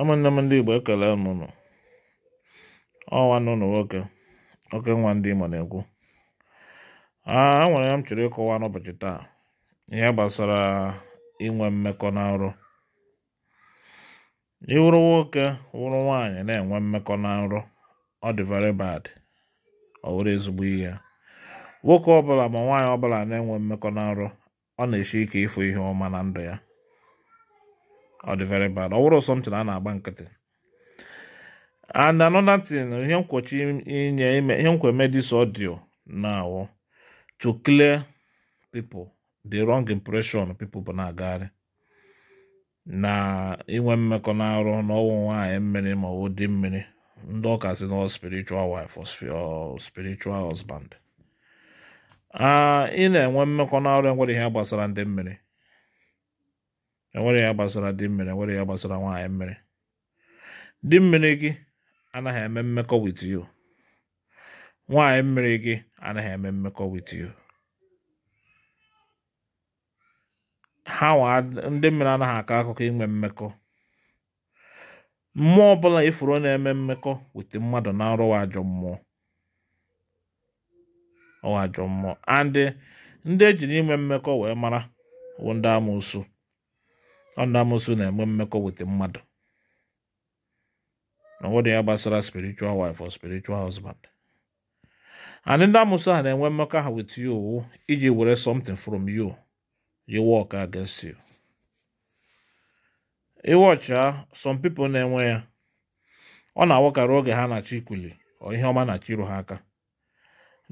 ụmụnne m ndị Igbo ekele m unu n'ụnụ nwoke oke nwa ndị Igbo na-ekwu a nwere ya m chọrọ ịkọwa n'ụbọchị taa ihe gbasara inwe mmekọ na nrọ ịwụrụ nwoke wụrụ nwaanyị na-enwe mmekọ na nrọ ọ dị very bad ọ wụrụ ezigbo ihe nwoke ọbụla ma nwaanyị ọbụla na-enwe mmekọ na nrọ ọ na-esi ike ịfụ ihe ọma na ndụ ya ọ dị very bad ọ wụrụ something a na-agba nkịtị and another thing ihe nkwochi inye ime ihe nkwe eme this audio now to clear people the wrong impression people bụ na-agagharị na inwe mmekọ na arụ n'ọnwụ nwaanyị mmiri ma ọ dị mmiri ndị ọka si na spiritual wife or spiritual husband ah, ị na-enwe mmekọ na arụ enwere ihe gbasara ndị mmiri enwere ya gbasara dị mmiri enwere ya gbasara nwaanyị mmiri dị mmiri gị anaghị eme mmekọ with you nwaanyị mmiri gị anaghị eme mmekọ with you ha ndị mmiri anaghị akọ akụkọ inwe mmekọ mmụọ ọbụla ifuru na-eme mmekọ wete mmadụ na arụ ajọ mmụọ ọwa ajọ mmụọ and ndị ejiri inwe mmekọ wee mara bụ ndị ọnụ amụsụ na-enwe mmekọ weta mmadụ na ọnwụdị ya gbasara spiritual wife or spiritual husband and ndị amụsụ a na-enwe mmekọ ha with you iji were something from you you work against you Iwọcha some people na-enwe ya ọ na-awakara oge ha na-achọ ikuli ọ ihe ọma na-achịrụ ha aka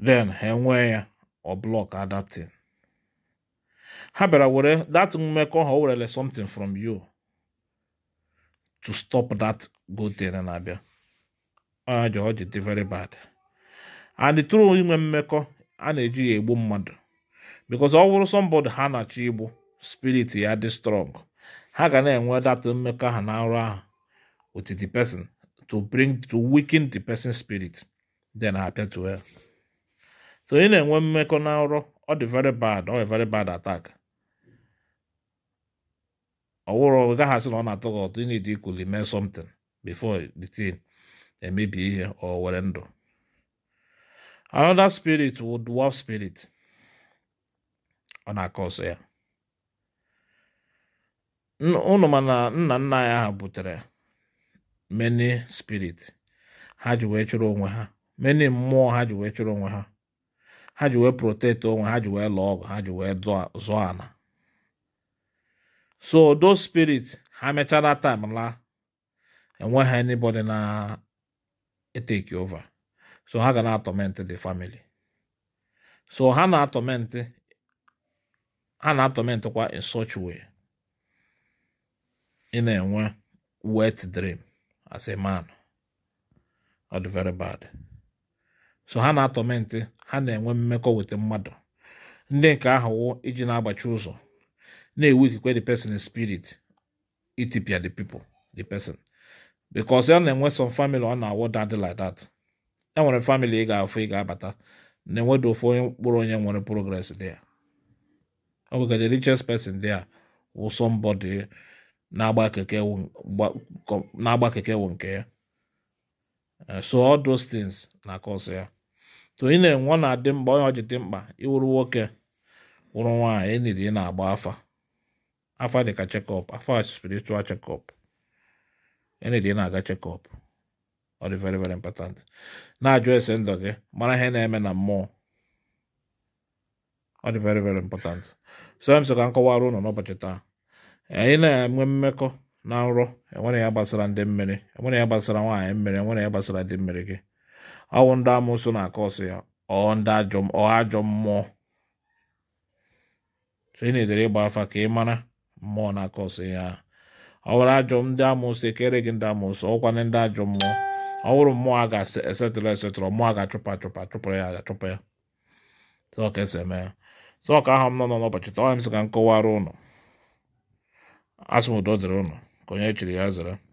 then ha enwee ya ọ blọk adapting ha bịara were that mmekọ ha o werele something from you to stop that good thing na-abịa ọ ji ọ ji dị very bad and true inwe mmekọ a na-eji ya egbu mmadụ because ọ wụrụ somebody ha na-achọ igbu spirit ya dị strong ha ga na-enwe that mmekọ ha na arụ ahụ with the person to bring to weaken the person's spirit then ha to ya so ị na-enwe mmekọ na nrọ ọ dị very bad ọ dị very bad attack ọwụrụ ọ gaghị asị na ọ na-atọ gị ụtọ ị need equally mee something before the thing emebi ihe ọ were ndụ another spirit wụ dwarf spirit ọ na-akọ ọsọ ya ụnụ mana nna nna anyị ha butere many spirit ha ji wee chụrụ onwe ha many mmụọ ha ji wee chụrụ onwe ha ha ji wee protect onwe ha ji wee lụọ ọgụ ha ji wee zụọ ana. so those spirits ha mechara time la enweghị anybody na etake over so ha ga na atọment the family so ha na atọment ha na atọment kwa in such way ị na-enwe wet dream as a man ọ dị very bad so ha na-atọmentị ha na-enwe mmekọ mmadụ ndị nke ahụwo iji na-agbachi ụzọ na ewu ikikwe the person spirit itipia the pipo the person because ya na-enwe some family ọ na-awọ that like that enwere family ị ga-afụ ị ga-abata na-enwedo ofu onye mkpụrụ onye nwere progress there ọ bụ the richest person wụ na-agba keke wụ nke ya Eh, so all those things na cause ya to ị na-enwe ọ na-adị mkpa onye ọjị dị mkpa ịwụrụ nwoke wụrụ nwaanyị eniri ị na-agba afa afa dịka chekọp afa spiritual chekọp eniri ị na-aga chekọp ọ dị very very important na-ajụ ese ndụ gị mara ihe na-eme na mmụọ ọ dị very very important so m sị ka m kọwara ụnụ n'ụbọchị taa anyị na-enwe mmekọ na nrọ enwere ya gbasara ndị mmiri enwere ya gbasara nwaanyị mmiri enwere ya gbasara ndị mmiri gị ọ bụ ndị amụsụ na-akọ ya ọ ndị ajọ mmụọ ị na-edere ịgba afa ka ị mara mmụọ na-akọ ya ọ bụrụ ajọ ndị amụsụ ekere gị ndị amụsụ ọkwana ndị ajọ mmụọ ọ bụrụ mmụọ a ga-esetụrụ esetụrụ mmụọ a ga-achụpụ achụpụ achụpụrụ ya achụpụ ya sọ ka esi eme ya sọ ka ahụ m nọ n'ụbọchị taa ọ ya m sị ka m kọwara ụnụ asụmodo dịrị ụnụ Konec li jazra. Né?